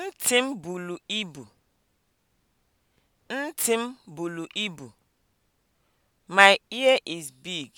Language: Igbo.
Ntị m buru ibu. Ntị m buru ibu. My ear is big.